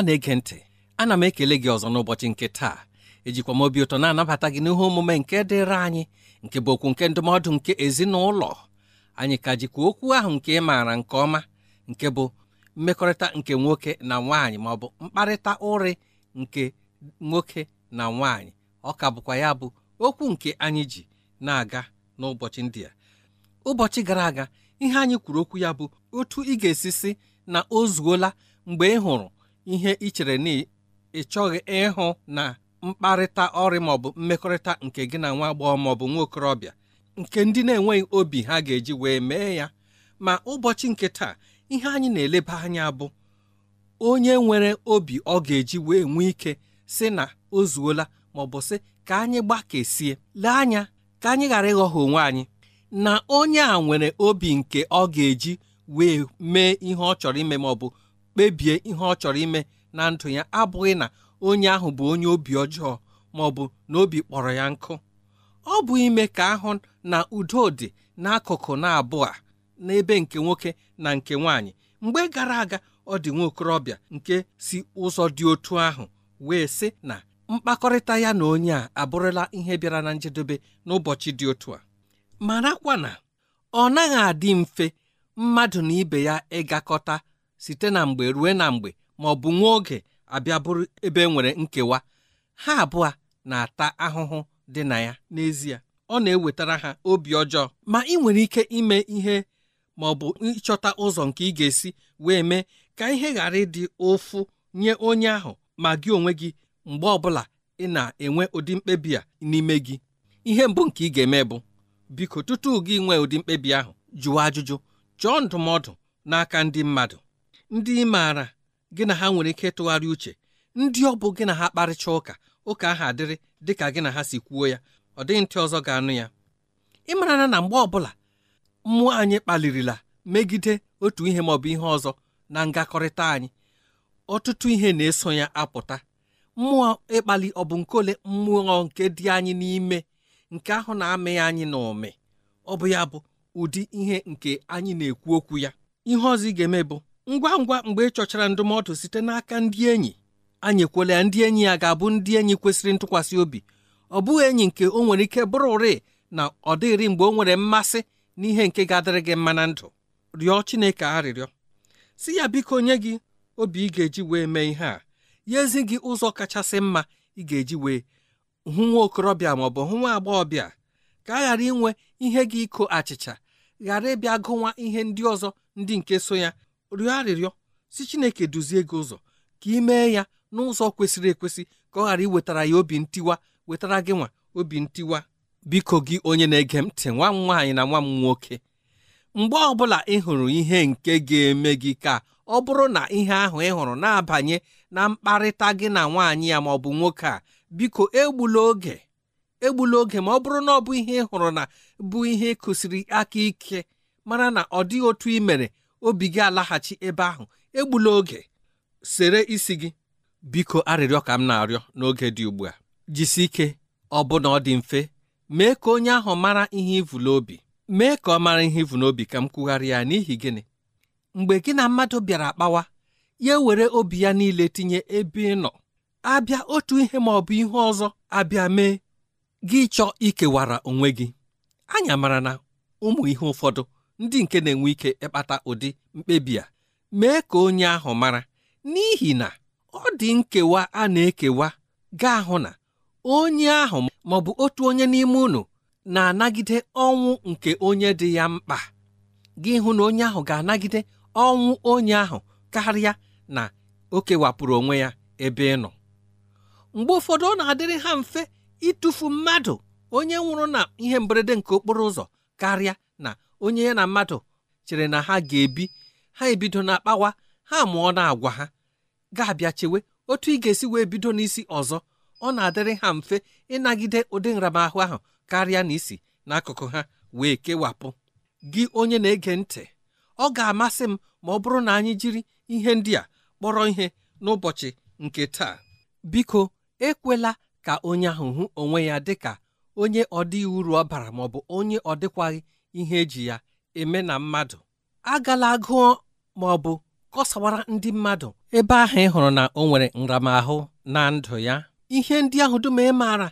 ọma na-ege ntị ana m ekele gị ọzọ n'ụbọchị nke taa ejikwa m obi ụtọ na-anabata gị n'ihe omume nke dịrị anyị nke bụ okwu nke ndụmọdụ nke ezinụlọ anyị ka jikwa okwu ahụ nke maara nke ọma nke bụ mmekọrịta nke nwoke na nwaanyị ma ọ bụ mkparịta ụrị nke nwoke na nwaanyị ọ ka bụkwa ya bụ okwu nke anyị ji na-aga n'ụbọchị ndị a ụbọchị gara aga ihe anyị kwuru okwu ya bụ otu ị ga-esi si na o zuola mgbe ị hụrụ ihe ị chere na ị chọghị ịhụ na mkparịta ọrị maọbụ mmekọrịta nke gị na nwa agbọghọ maọbụ nwa okorobịa nke ndị na-enweghị obi ha ga-eji wee mee ya ma ụbọchị nke taa ihe anyị na-eleba anya bụ onye nwere obi ọ ga-eji wee nwee ike si na o zuola maọbụ sị ka anyị gbakesie lee anya ka anyị ghara ịghọha onwe anyị na onye a nwere obi nke ọ ga-eji wee mee ihe ọ chọrọ ime maọbụ kpebie ihe ọ chọrọ ime na ndụ ya abụghị na onye ahụ bụ onye obi ọjọọ ma ọ bụ na obi kpọrọ ya nkụ ọ bụ ime ka ahụ na udo dị n'akụkụ na-abụọ n'ebe nke nwoke na nke nwaanyị mgbe gara aga ọ dị nwa okorobịa nke si ụzọ dị otu ahụ wee sị na mkpakọrịta ya na onye a abụrụla ihe bịara na njedebe n'ụbọchị dị otu a marakwa na ọ naghị adị mfe mmadụ na ibe ya ịgakọta site na mgbe rue na mgbe ma ọ bụ nwa oge abịa bụrụ ebe e nwere nkewa ha abụọ na-ata ahụhụ dị na ya n'ezie ọ na-ewetara ha obi ọjọọ ma ị nwere ike ime ihe ma ọ bụ ịchọta ụzọ nke ị ga-esi wee mee ka ihe ghara ịdị ụfụ nye onye ahụ ma gị onwe gị mgbe ọbụla ị na-enwe ụdị mkpebi a n'ime gị ihe mbụ nke ị ga-eme bụ biko tutu gị nwee ụdị mkpebi ahụ jụọ ajụjụ chọọ ndụmọdụ n'aka ndị mmadụ ndị ị maara gị na ha nwere ike ịtụgharị uche ndị ọ bụ gị na ha kparịcha ụka ụka ahụ adịrị dị ka gị na ha si kwuo ya ọ dịghị ntị ọzọ ga-anụ ya ị mara na mgbe ọbụla mmụọ anyị kpalirila megide otu ihe maọbụ ihe ọzọ na ngakọrịta anyị ọtụtụ ihe na-eso ya apụta mmụọ ịkpali ọ bụ nke ole mmụọ nke dị anyị n'ime nke ahụ na-amịghị anyị na ụmị ọ bụ ya bụ ụdị ihe nke anyị na-ekwu okwu ya ihe ọzọ ị ga-eme bụ ngwa ngwa mgbe ị chọchara ndụmọdụ site n'aka ndị enyi anyị ekwela ya ndị enyi ya ga-abụ ndị enyi kwesịrị ntụkwasị obi ọ bụghị enyi nke o nwere ike bụrụ ụrị na ọ dịghịrị mgbe o nwere mmasị n'ihe nke ga-adịrị gị mma na ndụ rịọ Chineke arịrịọ si ya biko nye gị obi ị ga-eji wee mee ihe a ya ezi gị ụzọ kachasị mma ị ga-eji wee hụ nwa okorobịa ma ọ bụ hụ nwa agbọghọbịa ka a ghara inwe ihe gị iko achịcha ghara ịbịa gụwa ihe ndị ọzọ ndị nke so ya rịọ arịrịọ si chineke duzie gị ụzọ ka ị mee ya n'ụzọ kwesịrị ekwesị ka ọ ghara iwetara ya obi ntiwa wetara gị nwa obi ntiwa biko gị onye na-ege ntị nwa m nwaanyị na nwa m nwoke mgbe ọbụla ị hụrụ ihe nke ga-eme gị ka ọ bụrụ na ihe ahụ ị hụrụ na-abanye na mkparịta gị na nwaanyị ya ma ọ bụ nwoke a biko egbula oge egbula oge ma ọ bụrụ na ọ bụ ihe ị hụrụ na bụ ihe kụsiri aka ike mara na ọ dịghị otu ị mere obi gị alaghachi ebe ahụ egbula oge sere isi gị biko arịrịọ ka m na-arịọ n'oge dị ugbu a jisie ike ọ bụ na ọ dị mfe mee ka onye ahụ mara ihe ivula obi. mee ka ọ mara ihe ivu n'obi ka m kwugharị ya n'ihi gịnị mgbe gị na mmadụ bịara kpawa ya ewere obi ya niile tinye ebe ị nọ abịa otu ihe ma ọ bụ ihe ọzọ abịa mee gị chọọ ikewara onwe gị anya mara na ụmụ ihe ụfọdụ ndị nke na-enwe ike ịkpata ụdị mkpebi a mee ka onye ahụ mara n'ihi na ọ dị nkewa a na-ekewa gaa hụ na onye ahụ ma ọ bụ otu onye n'ime unu na-anagide ọnwụ nke onye dị ya mkpa gị hụ na onye ahụ ga-anagide ọnwụ onye ahụ karịa na o kewapụrụ onwe ya ebe ị nọ mgbe ụfọdụ ọ na-adịrị ha mfe ịtụfu mmadụ onye nwụrụ na ihe mberede nke okporo ụzọ karịa na onye ya na mmadụ chere na ha ga-ebi ha ebido na akpawa ha mụọ na agwa ha ga-abịa chewe otu ị ga-esi wee bido n'isi ọzọ ọ na-adịrị ha mfe ịnagide ụdị nramahụ ahụ karịa na isi n'akụkụ ha wee kewapụ gị onye na-ege ntị ọ ga-amasị m ma ọ bụrụ na anyị jiri ihe ndị a kpọrọ ihe n'ụbọchị nke taa biko ekwela ka onye ahụ hụ onwe ya dịka onye ọ uru ọ bara maọbụ onye ọ dịkwaghị ihe eji ya eme na mmadụ agala agụọ ma ọ bụ kọsawara ndị mmadụ ebe ahụ ị hụrụ na o nwere nramahụ na ndụ ya ihe ndị ahụ dum ị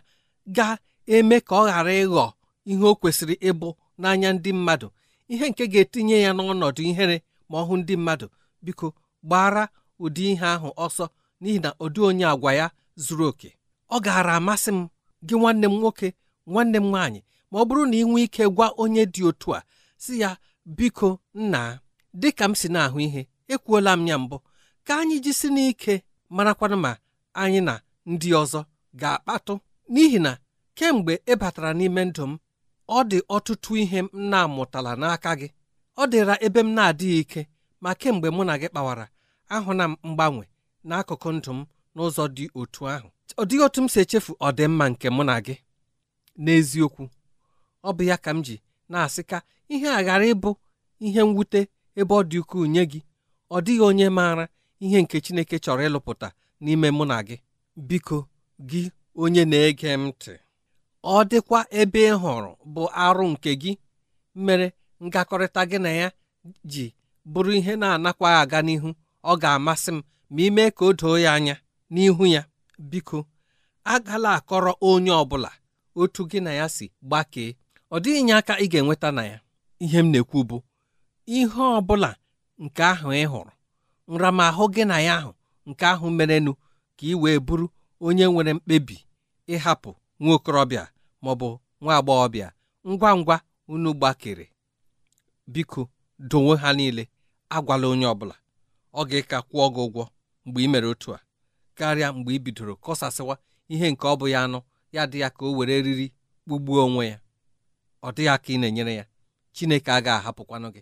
ga-eme ka ọ ghara ịghọ ihe o kwesịrị ịbụ n'anya ndị mmadụ ihe nke ga-etinye ya n'ọnọdụ ihere ma ọ hụ ndị mmadụ biko gbara ụdị ihe ahụ ọsọ n'ihi na ụdị onye àgwa ya zuru oke ọ gaara amasị m gị nwanne m nwoke nwanne m nwaanyị ma ọ bụrụ na ị nwee ike gwa onye dị otu a si ya biko nna dịka m si na-ahụ ihe ekwuola m ya mbụ ka anyị jisi n'ike marakwana ma anyị na ndị ọzọ ga-akpatụ n'ihi na kemgbe ị e batara n'ime ndụ m ọ dị ọtụtụ ihe m na-amụtala n'aka gị ọ dịra ebe m na-adịghị ike ma kemgbe mụ na gị kpawara ahụna m mgbanwe n'akụkụ ndụ m n'ụzọ dị otu ahụ ọ dịghị otu m si echefu ọdịmma nke mụ na gị n'eziokwu ọ bụ ya ka m ji na-asị ka ihe a ghara ịbụ ihe mwute ebe ọ dị ukwuu nye gị ọ dịghị onye maara ihe nke Chineke chọrọ ịlụpụta n'ime mụ na gị biko gị onye na-ege m ntị ọ dịkwa ebe ị hụrụ bụ arụ nke gị mere ngakọrịta gị na ya ji bụrụ ihe na-anakwa aga n'ihu ọ ga-amasị m ma ime ka o doo ya anya n'ihu ya biko agala akọrọ onye ọ bụla otu gị na ya si gbakee ọ dịghị nye aka ị ga-enweta na ya ihe m na-ekwu bụ ihe ọ bụla nke ahụ ị hụrụ nramahụ gị na ya ahụ nke ahụ merenụ ka ị wee bụrụ onye nwere mkpebi ịhapụ nwa okorobịa ma bụ nwa agbọghọbịa ngwa ngwa unu gbakere biko dowe ha niile agwala onye ọbụla ọ ga-eka kwụọ gị ụgwọ mgbe ị mere otu a karịa mgbe ị bidoro kọsasịwa ihe nke ọ bụ ya anụ ya dị ya ka o were riri kpugbuo onwe ya ọ dịghị aka ị na-enyere ya Chineke agaghị ahapụkwanụ gị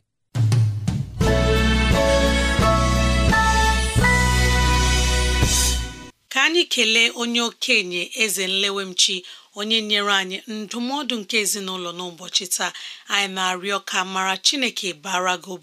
ka anyị kelee onye okenye eze nlewemchi onye nyere anyị ndụmọdụ nke ezinụlọ n'ụbọchị taa anyị na-arịọ ka mara Chineke bara gị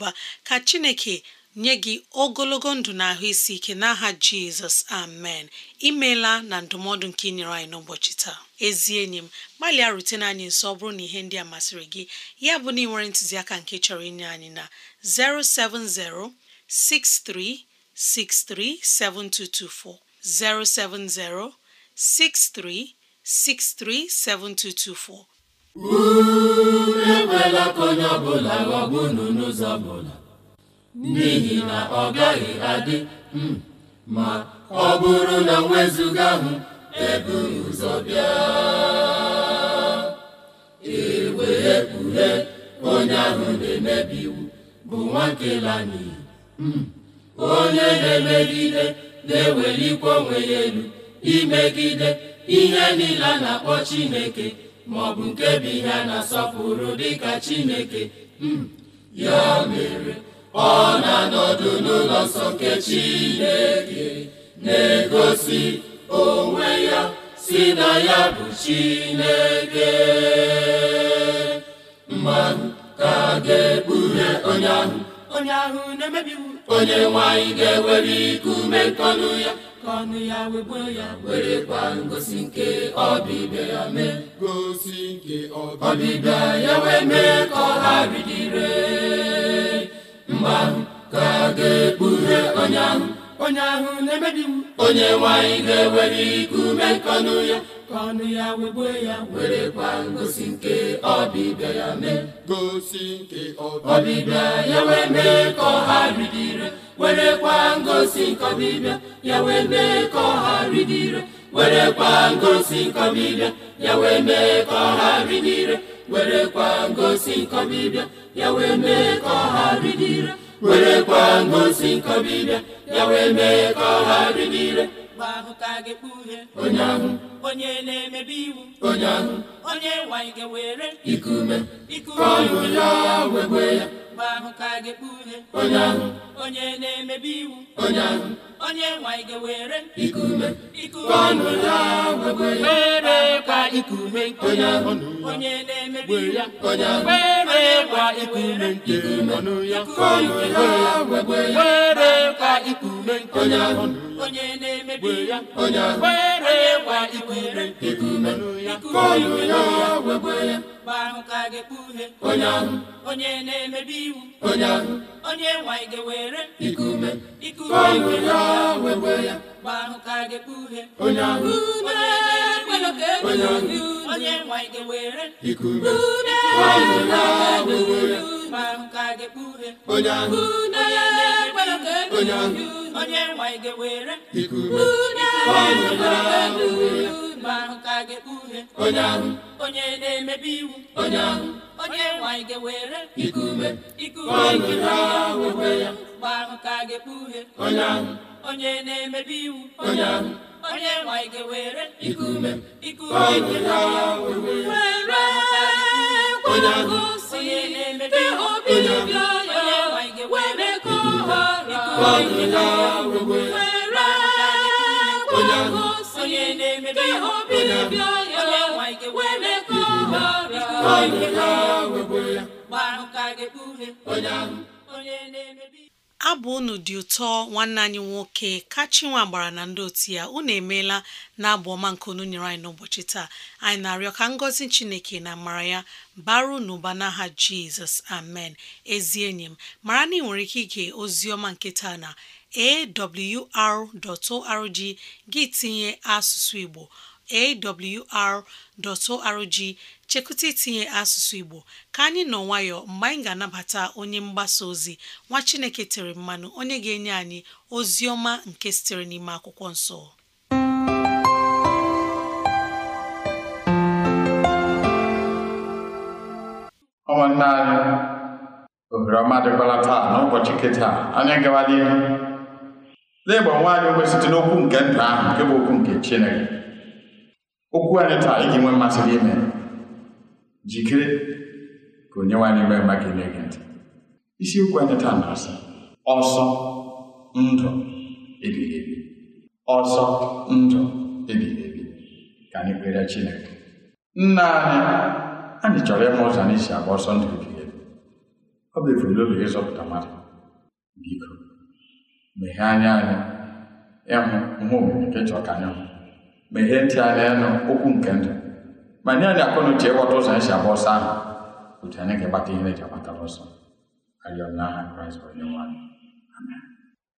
ka Chineke nye gị ogologo ndụ na ahụ isi ike n'aha jizọs amen imeela na ndụmọdụ nke inyere nyere anyị n'ụbọchị taa ezi enyi m gbalịa rutene anyị nso ọ bụrụ na ihe ndị a masịrị gị ya bụ na ị nwere ntụziaka nke chọrọ inye anyị na 07063637224 07063637224 unu ka onye ọbụla ghọgbu n'ụzọ ọbụla n'ihi na ọ gaghị adị hmm, ma ọ bụrụ na wezụga hụ eburu ụzọ bịa ewe ekpughe onye ahụ na-emebi iwu bụ nwa n'iyi hmm, onye na-emegide na-ewelikwa onwe ya elu imegide ihe niile a na-akpọ Chineke ma ọ bụ nke bụ na-asọpụrụ dịka Chineke hmm, ya mere ọ na-anọdụ n'ụlọ nsọ nke Chineke na-egosi onwe ya si na ya bụ Chineke mmanụ ka ga-ekpughe onye ahụ onye ahụ na nwanyị ga-ewere ikume kọnụ ya ka ọnụ ya wegbuo ya kwa ngosi nke ọbịbịa ya mee gosi nke ọbịbịa ya wee mee ka ọ ha bidire mgbe ahụ ka ga-ekpughe onye ahụ onye ahụ na-emebi iwu onye nwanyị ga-ewere iku ume nke ọnụ ya ka ya wegbue ya werekwa ngosi nke ọbịbịa ya mee gosi nke ọbịbịa ya wee mee ka ọha ridire kwa ngosi nke ọbịbịa ya wee mee ka ọha ridire kwa ngosi nke ọbịbịa ya wee mee ka ọha ridire werekwa ngosi nkọbịbịa ya wee mee ka ọ ghara ịdị ire ngosi nkọbịbịa ya wee mee ka ọ ghara ịdị ire ahụ ka a ga onye ahụ onye na-emebi iwu onye ahụ onye nwaanyị ga-were ikume ikume ka ọṅụ ya wegwe ya ngwa ahụ ka ga-ekpu onye ahụ onye na-emebi iwu onye ahụ onye nwanyị ga-ewere ikume ikume ọnụ ya were kwa ikume onye ahụ onye na-emebi ya onye ahụ were kwa ikume ikume ọnụ ya ọnụ ya were kwa ikume onye ahụ onye na-emebi ya onye ahụ were kwa ikume ikume ọnụ ya ọnụ ya were ya mgbe ahụ ka ga-ekpe onye ahụ onye na-emebi iwu onye ahụ onye nwanyị ga were! ikume ikume ya wekwe ya mgbe ahụ ka ga-ekpe uhe onye ahụ onye nwanyị ga-ewere ikume ya wekwe ya mgbe ahụ ka ga-ekpe uhe onye ahụ onye nwanyị ga were! ikume ya wekwe ya mkpa ahụ ka ga onye na-emebi iwu onye ahụ onye nwanyị ga iku ume iku ume mkpa ahụ ka ga onye ahụ onye na emebe iwu onye ahụ onye nwanyị ga iku ume iku ume were kwanago si dị obi obi ọya were ka ọhara iku ume abụ unu dị ụtọ nwanne anyị nwoke kachinwa gbara na ndị otu ya unu emeela na abụ ọma nke unu nyere anyị n'ụbọchị taa anyị na-arịọ ka ngọzi chineke na mara ya baru n'ụba n'aha jizọs amen ezi enyi m mara na ị nwere ike ige ozi ọma nke taa na awr.org gị tinye asụsụ igbo awr.org chekụta itinye asụsụ Igbo ka anyị nọ nwayọ mgbe anyị ga-anabata onye mgbasa ozi nwa Chineke tere mmanụ onye ga-enye anyị ozi ọma nke sitere n'ime akwụkwọ nsọ ụmụnne anyị ohere ọma dịkwala taa n'ụbọchị kịta anyị gawala ihu na-egba nwaanyị ogbe site n'okwu nke ndụ ahụ nke bụ okwu nke Chineke okwu anyị taa iji nwee mmasị gị ime jikere ka onye nwe nwee mma gị na-ege ntị isiokwu anyị taa na-asị ọsọ ndụ ebighị ebi ọsọ ndụ ebighị ebi ka anyị kpere Chineke nna anyị anyị chọrọ ịma ụzọ anyị si agba ọsọ ndụ ebighị ebi ọ bụ ebumnobi ịzọpụta mmadụ biko meghee anya anyị ịhụ ihe omume nke chọọ ka anyị hụ meghee ntị ala ịnụ okwu nke ndụ ma nye anyị akọ na ịghọta ụzọ anyị si agba ọsọ ahụ otu anyị ga-agbata ihe eji agbatara ọsọ arịọ kraịst onye nwanyị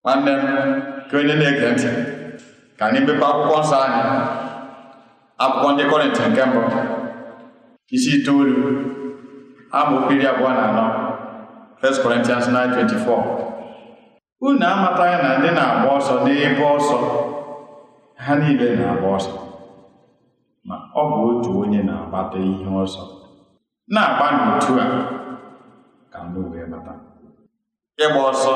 nwanne m ka onye na-ege ntị ka anyị mepe akwụkwọ nsọ anyị akwụkwọ ndị kọrịntị nke mbụ isi itoolu amaokwu iri abụọ na anọ 1 Corinthians 24. unu amataghị na ndị na-agba ọsọ n'ebe ọsọ ha niile na-agba ọsọ ma ọ bụ otu onye na-agbata ihe ọsọ na-agba n'otu a ka ndị wee bata ịgba ọsọ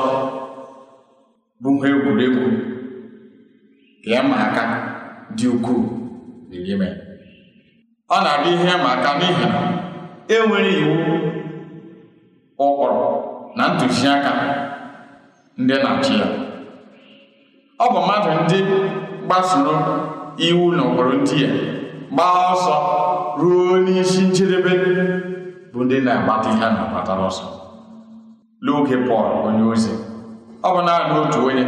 bụ ha egwuregwu ka ịma aka dị ukwuu n'ime ọ na-abụ ihe ịma n'ihi na enwere iwu ụkpụrụ na ntụziaka ndị na-achị ya ọ bụ mmadụ ndị kpasuo iwu na ụkpụrụ ndị ya gbaa ọsọ ruo n'isi njedebe bụ ndị na-agbata ihe a na-agbatara ọsọ n'oge Pọl onye ozi ọ bụ naanị otu onye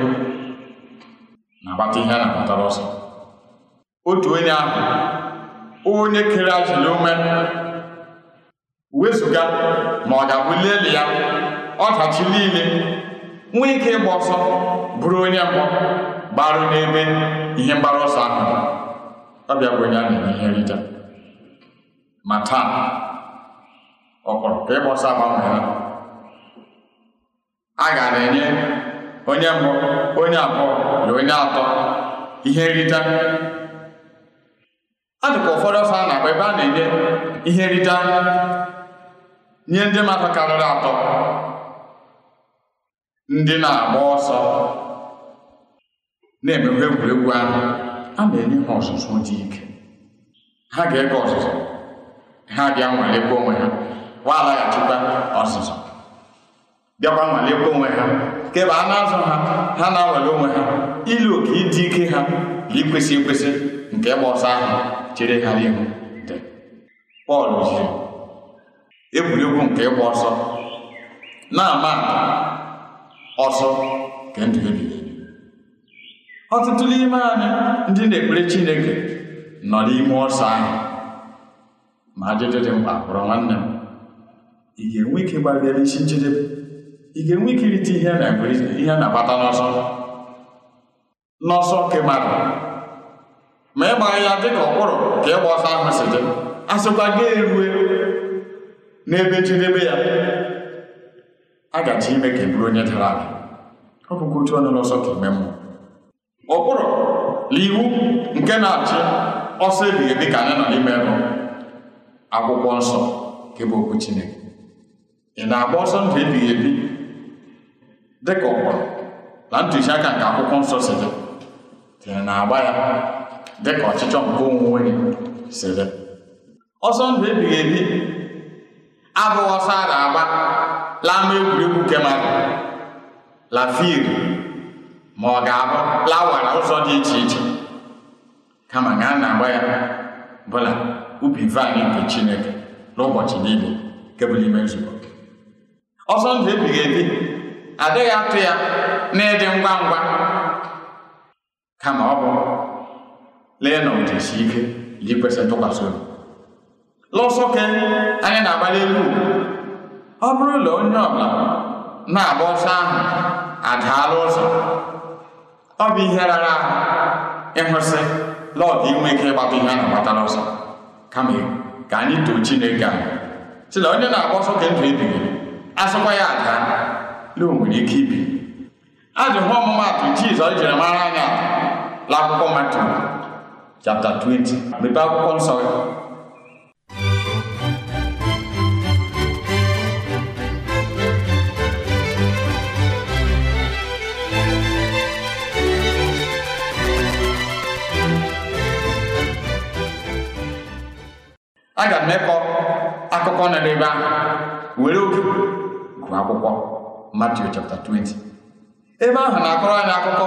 na-agbata ihe a na-agbatara ọsọ otu onye ahụ onye kere ajụla uwe wezụga ma ọ ga-abụli elu ya ọdachi niile nwee ike ịgba ọsọ bụrụ onye mbụ gbarụ n'ebe ihe mgbaru ọsọ ahụ ọ bụ onye a na-enye ihe nrita ma taa ọ kpọrọ ka ịgba ọsọ agbanwe ha a gara enye onye mbụ onye abụọ na onye atọ ihe nrita a dịka ụfọdụ ọsọ a na-agba ebe a na-enye ihe nrita nye ndị mmadụ karịrị atọ ndị na-agba ọsọ na-emekwa egwuregwu ahụ a na-enye ha ọzụzụ dị ike ha ga-ege ọzụzụ ha bịa nwalekwa onwe ha wa alaghachikwa ọzụzụ bịakwa nwalekwa onwe ha kebe a na-azụ ha ha na-anwale onwe ha ilu oke ịdị ike ha na ikwesị ekwesị nke ịgba ọsọ ahụ chere ha n'ihu dị Pọl jiri egwuregwu nke ịgba ọsọ na-ama ọsọ nke ndụ ọtụtụ n'ime anyị ndị na-ekpere Chineke nọ n'ime ọsọ ahụ ma ajụjụ dị mkpa kpọrọ nwanne m ị ga-enwe ike gbalịa isi njedebe ị ga-enwe ike irite ihe ihe na-abata n'ọsọ n'ọsọ nke mmadụ ma ịgba ya dị ka ọkpụrụ ka ịgba ọsọ ahụ si dị a sịkwa gị erue n'ebe njedebe ya a ime ka e bụrụ onye dara ala ọ bụkwa otu ọnụ n'ọsọ ka ime mmụọ ụkpụrụ na iwu nke na-achị ọsọ ebighị dị ka anyị nọ n'ime bụ akwụkwọ nsọ nke bụ okwu Chineke ị na-agba ọsọ ndụ ebighị ebi dị ka ụkpụrụ na aka nke akwụkwọ nsọ si dị tiri na-agba ya dị ka ọchịchọ nke onwe gị si dị ọsọ ndụ ebighị ebi abụghị ọsọ a na-agba laa n'egwuregwu kemara lafiri ma ọ ga-abụ na ụzọ dị iche iche kama a na-agba ya bụla ubi vaịn nke Chineke n'ụbọchị niile nke ime nzukọ ọsọ ndụ ebighị ebi adịghị atụ ya n'ịdị ngwa ngwa kama ọ bụ lee na ụdịsi ike ji kwesị ntụkwasị obi Lụsọ ke anyị na-agbali elu ọ bụrụ na onye ọbụla na-agba ọsọ ahụ adaala ụzọ ọ bụ ihe rara ahụ ịhụsị lọdụ inwe ike ịgbata ihe a na-agbata n'ọsọ kama ka anyị too chineke ahụ si na onye na-agba ọsọ ka ndụ ebighị asụkwa ya aga, na o nwere ike ibi hụ ọmụmatụ jizọs jiri mara anya n'akwụkwọ matu chapter 20 mepee akwụkwọ nsọ aga m ekọ akụkọ nọ n'ebe ahụ were oge gụọ akwụkwọ Matiu chapter 20 ebe ahụ na-akọrọ anyị akụkọ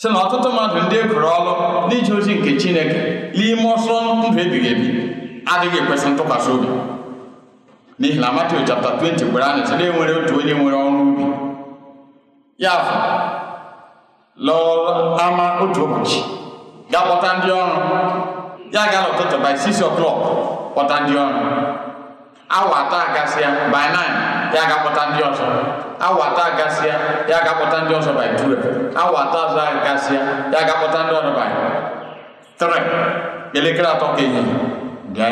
sị na ọtụtụ mmadụ ndị e gụrụ ọrụ n'ije ozi nke Chineke n'ime ọsọ ndụ ebighị ebi adịghị ekwesị ntụkwasị obi n'ihi na Matiu chapter 20 gwara anyị sị na enwere otu onye nwere ọrụ ubi ya fụ lọọ ama otu ụbọchị ga-akpọta ndị ọrụ ya ga-ala ụtụtụ by six o'clock kpọta ndị ọrụ awa atọ agasịa by nine ya ga-akpọta ndị ọzọ awa atọ agasịa ya ga-akpọta ndị ọzọ by 12 awa atọ ọzọ agasịa ya ga-akpọta ndị ọrụ by three elekere atọ ka ehihie bịa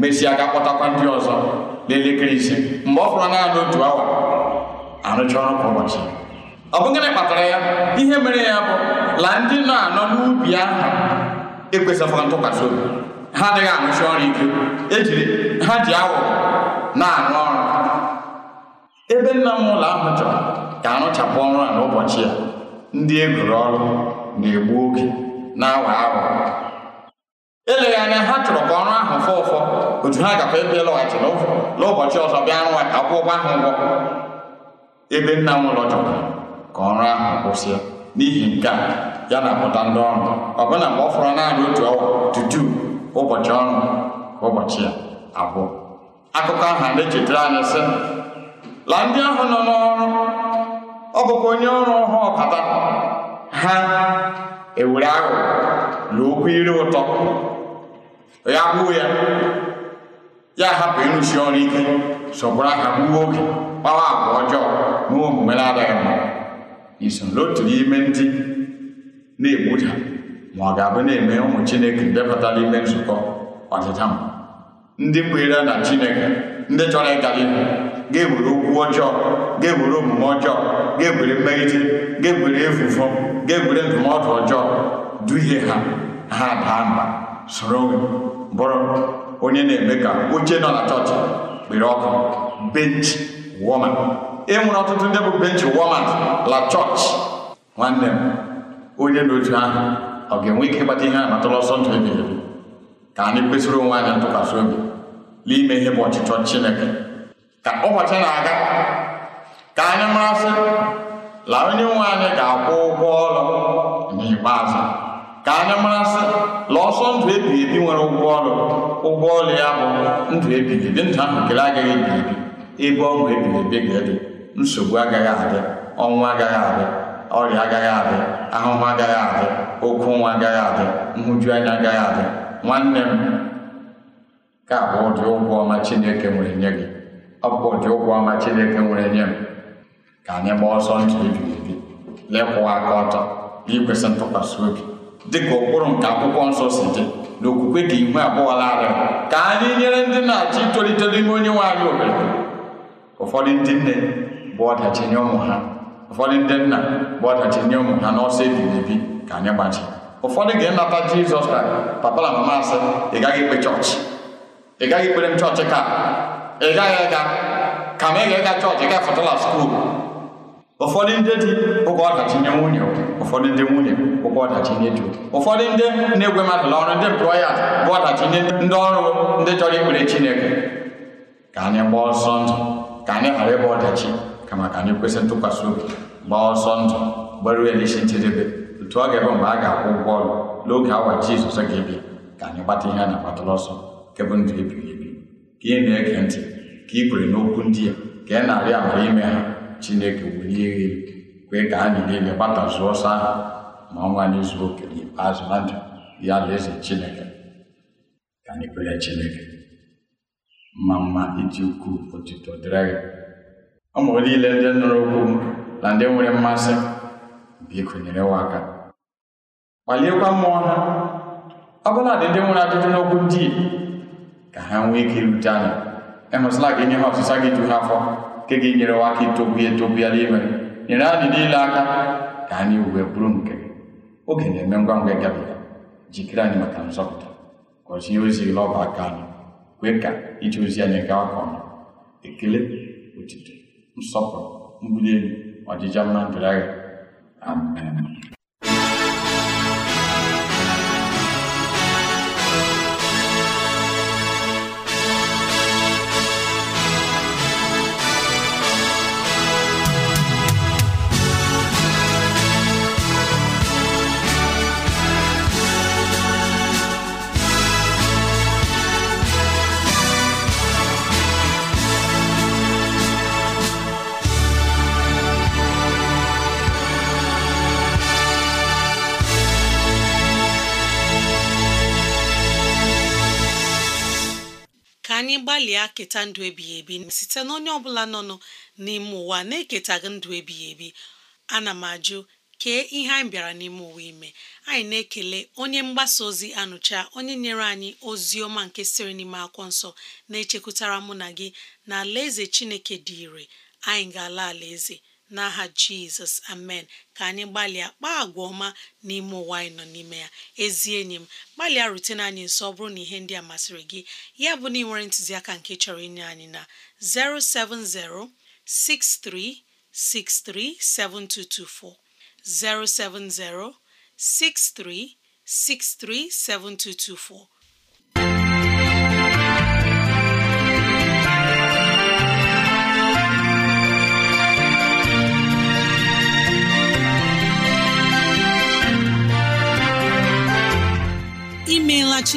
mesịa ga-akpọtakwa ndị ọzọ n'elekere ise mgbe ọ fụrụ naanị otu awa arụcha ọrụ kwa ụbọchị ọ bụ gịnị ya ihe mere ya bụ la ndị nọ anọ n'ubi ahụ ekwesịkwa ntụkwasị obi ha adịghị arụsi ọrụ ike ejiri ha ji awụ na-arụ ọrụ ebe nna m ụlọ ahụ chọrọ ka arụchapụ ọrụ a n'ụbọchị ya ndị egoro ọrụ na-egbu oge na-awa awụ eleghị anya ha chọrọ ka ọrụ ahụ fọ ụfọ otu ha gakwa ebe lọghachi n'ụbọchị ọzọ bịa rụwa ka akwụ ụgwọ ahụ ụgwọ ebe nna m ụlọ chọrọ ka ọrụ ahụ kwụsị n'ihi nke a ya na-apụta ndị ọrụ ọbụna mgbe ọ fọrọ naanị otu tutu ụbọchị ọrụ ụbọchị ya abụọ akụkọ ahụ na-echetara anyị sị la ndị ahụ nọ n'ọrụ ọ bụkwa onye ọrụ ọhụụ ọkata ha ewere ahụ na okwu ire ụtọ ya gbuo ya ya hapụ ịrụsi ọrụ ike sọgbụrụ aha gbuo oge gbawa agwa ọjọọ omume na-adaghị mma iso n'otu n'ime ndị na-egbuda ma ọ ga-abụ na-eme ụmụ chineke ndebata n'ime nzukọ ọdịda ndị kwenyere na chineke ndị chọrọ ịgala ihu ga-ewere okwu ọjọọ ga-ewere omume ọjọọ ga-ewere mmerite ga-ewere efufu ga-ewere ndụmọdụ ọjọọ duhie ha ha daa mba soro bụrụ onye na-eme ka oche nọ na chọọchị kpere ọkụ benchi woman e nwere ọtụtụ ndị bụ benchi woman la chọọchị nwanne m onye notu ahụ ọ ga-enwe ike ịgbata ihe a natara ọsọ ndụ ebighị ebi ka anyị kwesịrị onwe anyị ntụkwasị obi n'ime ihe bụ ọchịchọ Chineke ka ụbọchị na-aga ka anyị marasị la onye nwe anyị ga-akwụ ụgwọ ọrụ n'ikpeazụ ka anyị marasị la ọsọ ndụ ebighị ebi nwere ụgwọ ọrụ ụgwọ ọrụ ya bụ ndụ ebighị ebi ndụ ahụ kele agaghị ebighị ebi ebe ọṅụ ebighị ebi ga-adị nsogbu agaghị adị ọnwụ agaghị adị ọrịa agaghị adị ahụhụ agaghị adị okwu nwa agaghị adị nhụju anya agaghị adị nwanne m ka bụ ụdị ụgwọ ọma Chineke nwere nye gị ọ bụ ụdị ụgwọ ọma Chineke nwere nye m ka anyị gbaa ọsọ ntụ ebighị lekwụwa aka ọtọ n'ikwesị ntụkwasị obi dịka ụkpụrụ nke akwụkwọ nsọ si dị na okwukwe ka ihu abụọ ka anyị nyere ndị na-achọ itolite n'ime onye nwe anyị obodo ụfọdụ ndị nne bụ ọdachi nye ụmụ ha ụfọdụ ndị nna bụ ọdachi nye ụmụ ha n'ọsọ ebighị ebi ka anyị gbaji ụfọdụ ga-enata jizọs ka papa na mama asị ị gaghị ikpe chọọchị ị gaghị ikpere m chọọchị ka ị gaghị ịga ka ma ị ga-ịga chọọchị ị gafọtala skuul ụfọdụ ndị di ụgwọ ọdachi nye nwunye ụfọdụ ndị nwunye ụgwọ ọdachi nye di ụfọdụ ndị na-egwe mmadụ ọrụ ndị employers bụ ọdachi nye ndị ọrụ ndị chọrọ ikpere chineke ka anyị gbaa ọsọ ndụ ka anyị ghara ịgba ọdachi kama ka anyị kwesị ntụkwasị obi gbaa ọsọ ndụ gbaruo elechi njedebe otu ọ ga-ebe mgbe a ga-akwụ ụgwọ ọrụ n'oge awa Jizọs ga-ebi ka anyị gbata ihe a na-agbatara ọsọ nke ndụ ebighị ebi ka ị na-ege ntị ka ị kwere n'okwu ndị a ka ị na abịa amara ime ha Chineke welie elu kwee ka anyị niile gbatazuo ọsọ ahụ ma ọnwa anyị zuo oke n'ikpeazụ na ndụ ya alaeze Chineke ka anyị kwere Chineke mma mma iji ukwuu otuto dịrị ọmụ niile ndị nụrụ okwu m na ndị nwere mmasị biko nyere wa aka kpaliekwa mmụọ ha ọbụladị dị ndị nwere ajụjụ n'okwu ndị ka ha nwee ike irute anya emesịla gị nye ha ọsịsa gị ju ha afọ nke gị enyere aka itogbu ya etobu ya n'ime nyere anyị niile aka ka anyị wee bụrụ nke oge na-eme ngwa ngwa gabiga jikere anyị maka nzọpụta gọzie ozi lọba aka anyị kwee ka ije ozi anyị gaa ka ọnụ ekele otito nsọpụrụ mbuli elu ọdịja di ndụ agha. Amen. anyị gbalịa keta ndụ ebighị ebi site na onye ọbụla nọ n'ime ụwa na-eketaghị ndụ ebighị ebi ana m ajụ kee ihe anyị bịara n'ime ụwa ime anyị na-ekele onye mgbasa ozi anụcha onye nyere anyị ozi ọma nke siri n'ime akwụkwọ nsọ na-echekwutara mụ na gị na alaeze Chineke dị ire anyị ga-ala alaeze n'aha jizọs amen ka anyị gbalịa kpaa agwa ọma n'ime ụwa anyị nọ n'ime ya ezi enyi m gbalịa rutene anyị nso bụrụ na ihe ndị a masịrị gị ya bụ na ị nwere ntụziaka nke chọrọ inye anyị na 07063637224 7224.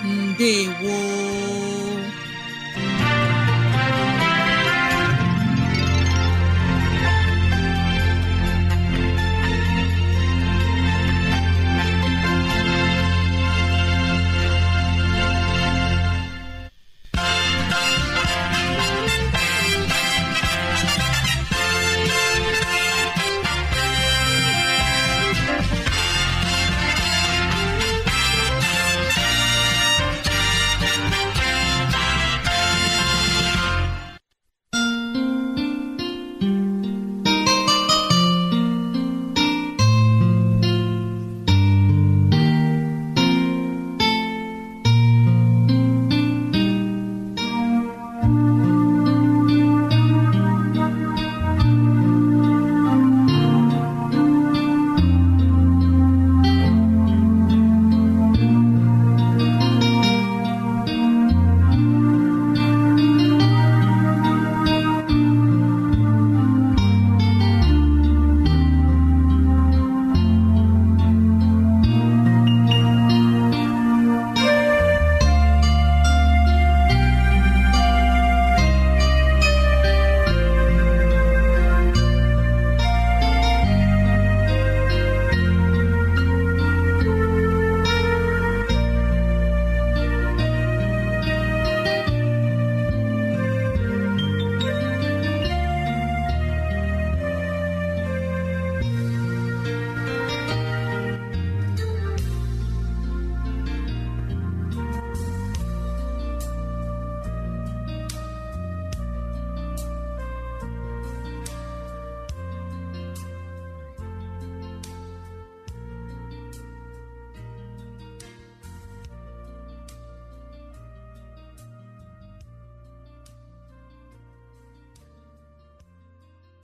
ndewo